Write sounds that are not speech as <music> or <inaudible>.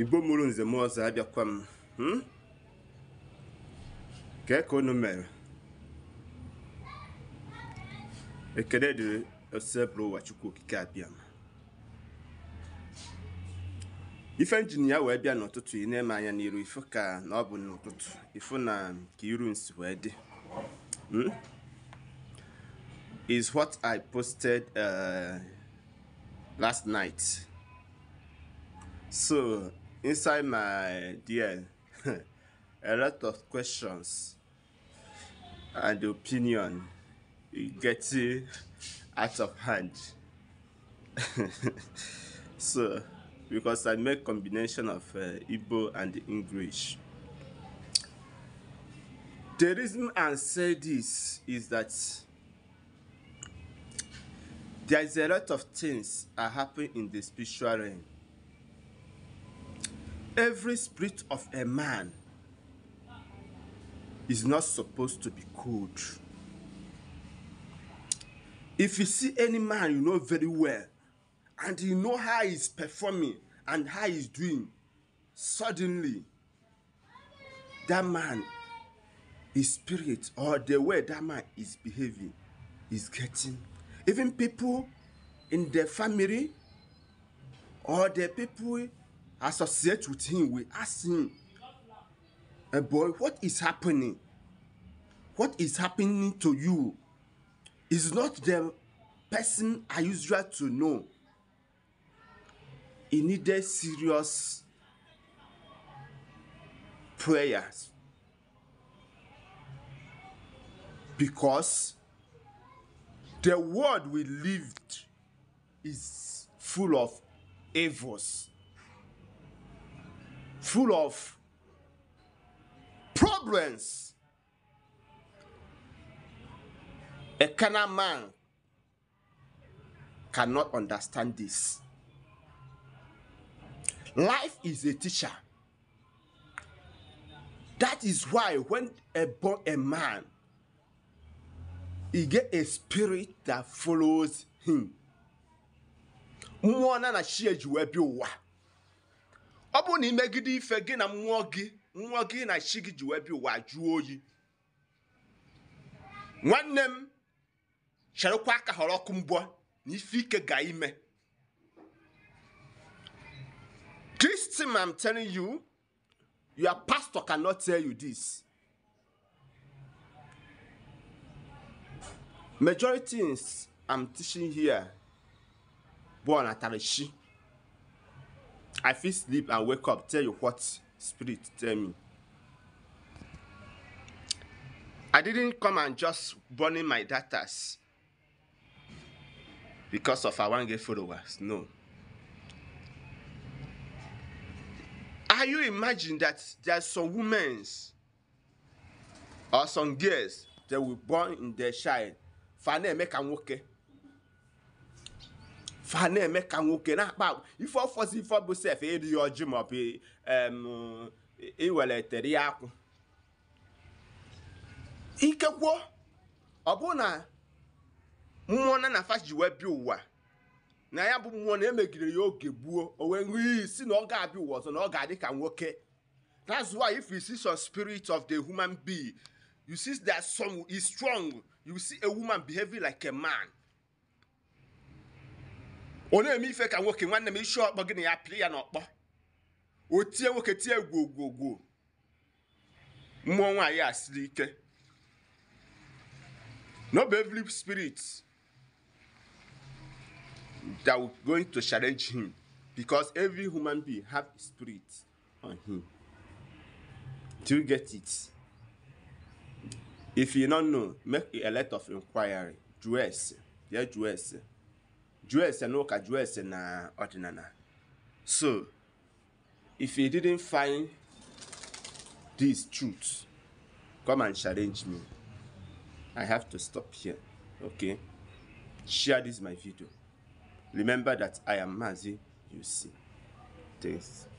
igbo mụrụ nze m ọzọ abịakwa m hmm? ka unu mere ekele dịrị osebụrụ ụwa chukwu okike abịa m ife njin ya wee bịa n'ụtụtụ ị na-eme anya n'iru ka na ọ bụ n'ụtụtụ ifu na ka iru nsi wee dị hmm? is what I posted uh, last night. So inside my DL, <laughs> a lot of questions and opinion getting out of hand. <laughs> so, because I make combination of uh, Igbo and English. The reason I say this is that there is a lot of things are happening in the spiritual realm every spirit of a man is not supposed to be cold. If you see any man you know very well and you know how he's performing and how he's doing, suddenly that man, his spirit or the way that man is behaving is getting. Even people in the family or the people associate with him we ask him eh, boy what is happening what is happening to you is not the person i usual to know he needed serious prayers because the world we lived is full of evils full of problems. A carnal man cannot understand this. Life is a teacher. That is why when a born a man, he get a spirit that follows him. Mmụọ na ọ bụrụ na imegide ife gị na mmụọ gị mmụọ gị na chi gị ji wee bịa ụwa jụọ oyi nwanne m cherekwa aka họrọ ọkụ mbọ na ife ike ga ime this thing i'm telling you your pastor cannot tell you this majority things am teaching here bụ ọnatarachi i fit sleep and wake up tell you what spirit tell me i didn't come and just burning my datas because of i wan get followers no are you imagine that there are some women's or some girls they were born in their child fane make am okay fa na-eme ka nwoke na-akpa agwa ife ọfọzi ife bụ sef erighị ọjị maọbụ iweletere e ya akwụ ikekwuo ọ bụ na mmụọ na na ji wee bịa ụwa na ya bụ mmụọ na emegidere ya oge gbuo o wee nwee isi na ọ ga-abịa ụwa ọzọ na ọ ga-adị ka nwoke that's why if you see some spirit of the human being you see that some is strong you see a woman behaving like a man onye eme ife ka nwoke nwanne m isi ọkpọ gị na ya pịrị ya n'ọkpọ o tie nwoke tie gwogwogwo mmụọ nwaanyị a siri ike no be every spirit that will going to challenge him because every human being have spirit on him do you get it if you no know make a lot of inquiry dress yeah dress dress and work a dress and uh, ordinary. So, if you didn't find these truths, come and challenge me. I have to stop here, okay? Share this my video. Remember that I am Mazi, you see. Thanks.